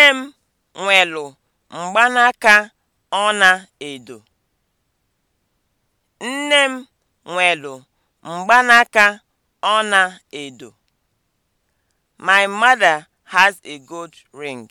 Nne m nwelu mgbanaka ọla-edo. Nne m edo My mother has a gold ring.